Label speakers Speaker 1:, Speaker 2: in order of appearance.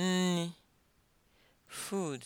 Speaker 1: nni food